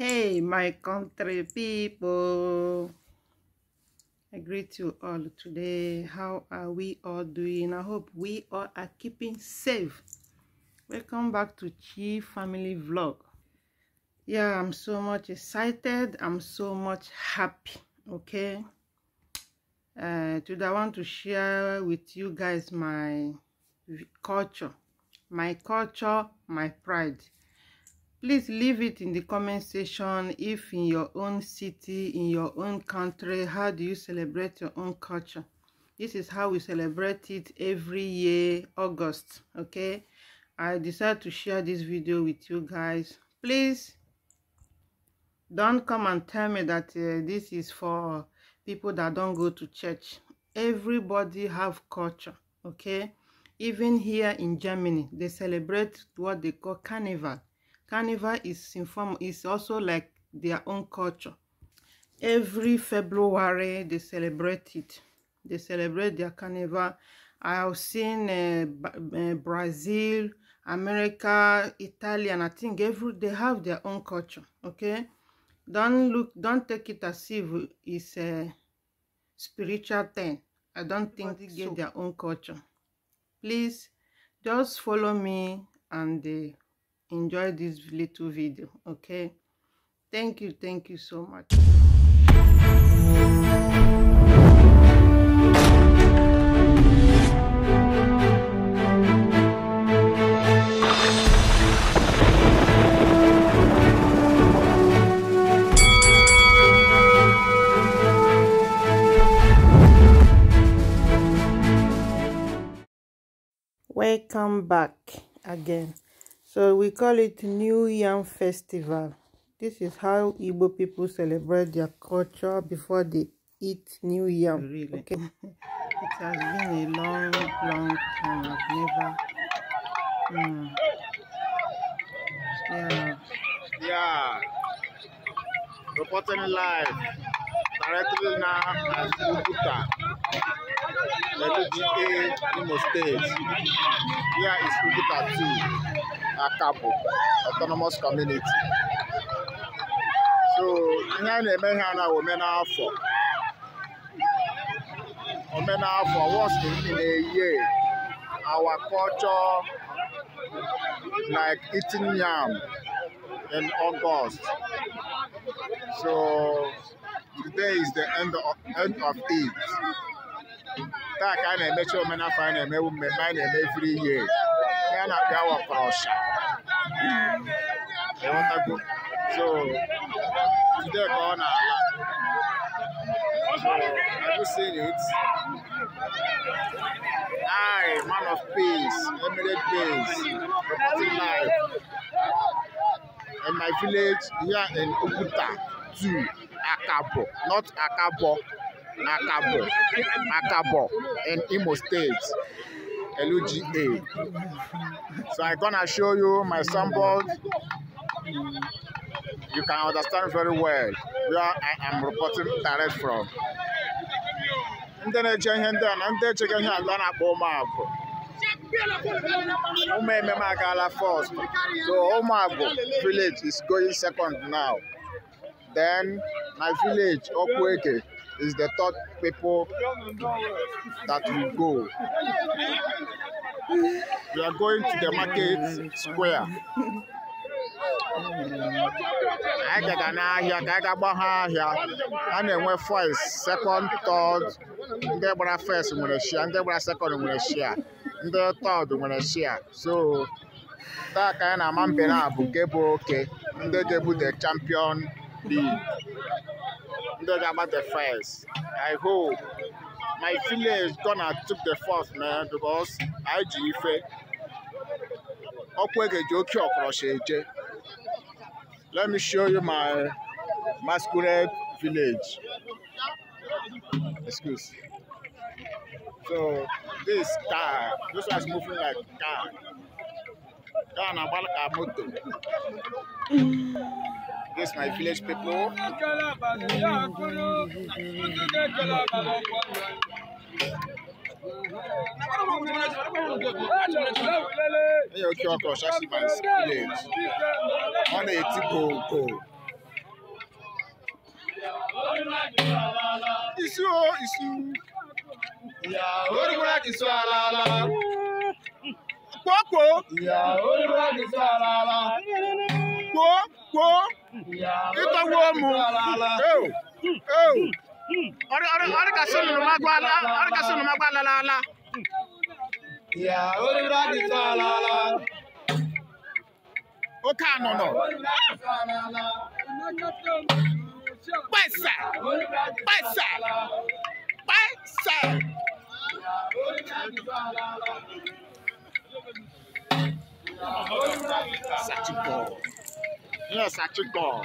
Hey, my country people. I greet you all today. How are we all doing? I hope we all are keeping safe. Welcome back to Chi Family Vlog. Yeah, I'm so much excited. I'm so much happy. Okay. Uh, today I want to share with you guys my culture. My culture, my pride please leave it in the comment section if in your own city in your own country how do you celebrate your own culture this is how we celebrate it every year august okay i decided to share this video with you guys please don't come and tell me that uh, this is for people that don't go to church everybody have culture okay even here in germany they celebrate what they call carnival Carnival is informal. It's also like their own culture. Every February they celebrate it. They celebrate their carnival. I have seen uh, uh, Brazil, America, Italy, and I think every they have their own culture. Okay, don't look, don't take it as if it's a spiritual thing. I don't think they get so. their own culture. Please, just follow me and. Uh, enjoy this little video okay thank you thank you so much Welcome back again. So we call it New Yam Festival. This is how Igbo people celebrate their culture before they eat new yam. Really? Okay. it has been a long, long time. I've never. Mm. Yeah. Yeah. Reporting live. Directly now as Ubuta. Let me Imo State. Here is Ubuta too. Akapo Autonomous Community so ihe a na-eme ihe a na omenafọ omenafọ wọst ndị na-eye our culture like eating yam in August so today is the end of, end of it taa ka a na-emecha omenafọ a na-emewu mmemme a na-eme every year ya na-abịa wapụrụ ọsha aghọtago so today ka ọ na-ala so I just seen it I man of peace emirate peace, reporting live in my village here in Oguta two Akabo not Akabo Akabo Akabo in Imo State. LUGA. So I'm gonna show you my sample. you can understand very well where I am reporting direct from. ndị na-eje ihe ndị a na ndị echega ihe ala na-akpọ ụmụagwụ first so ụmụagwụ oh, village is going second now then my village okwueke is the third people that will go we are going to the market square anyị gaga n'ahịa ka anyị ga-agbagha ahịa a na-enwe first second third ndị gbara first nwere shia ndị gbara second nwere shia ndị third nwere shia so taa ka anyị na-ama mbe na bụ nke bụ oke ndị ga-ebu the champion league ndị ga-agba the first i hope my village gonna took the first man because anyị ji ife ọkwa e ga-eji oke ọkọrọcha eje Let me show you my masquerade village. Excuse. So this car, this one is moving like car. Car and a moto. This my village people. Hey, okay, okay, Shashiman's village. On a go go. Isu o isu. Ìyá olúwa kì í sọ ara la. Kókó. Ìyá olúwa kì í sọ ara la. Kó kó. Ìyá olúwa kì í sọ ara la. Ìtọ́wọ́ mu. Eo. Eo ɔre ka se nunuma Yes, Sati ball.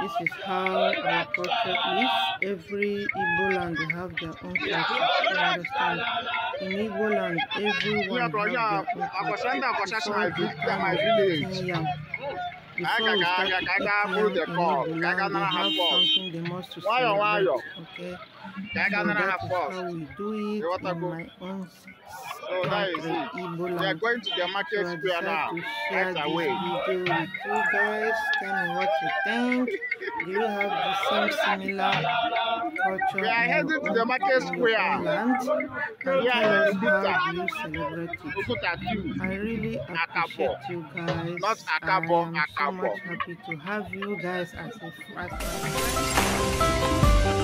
This is how our culture is. Every Igbo land they have their own culture. You understand? In Igbo land, everyone have their own culture. Yam. Before we start eating yam in Igbo, we have something they must to celebrate. Oh? Okay. Diagonal and a half four. I so that is it. We are going to the market square now. Right away. you guys. Tell me what you think. Do you have the same similar culture? We are heading to the market square. yeah, how do I really appreciate you guys. Not Akabo, I am so much happy to have you guys as a friend.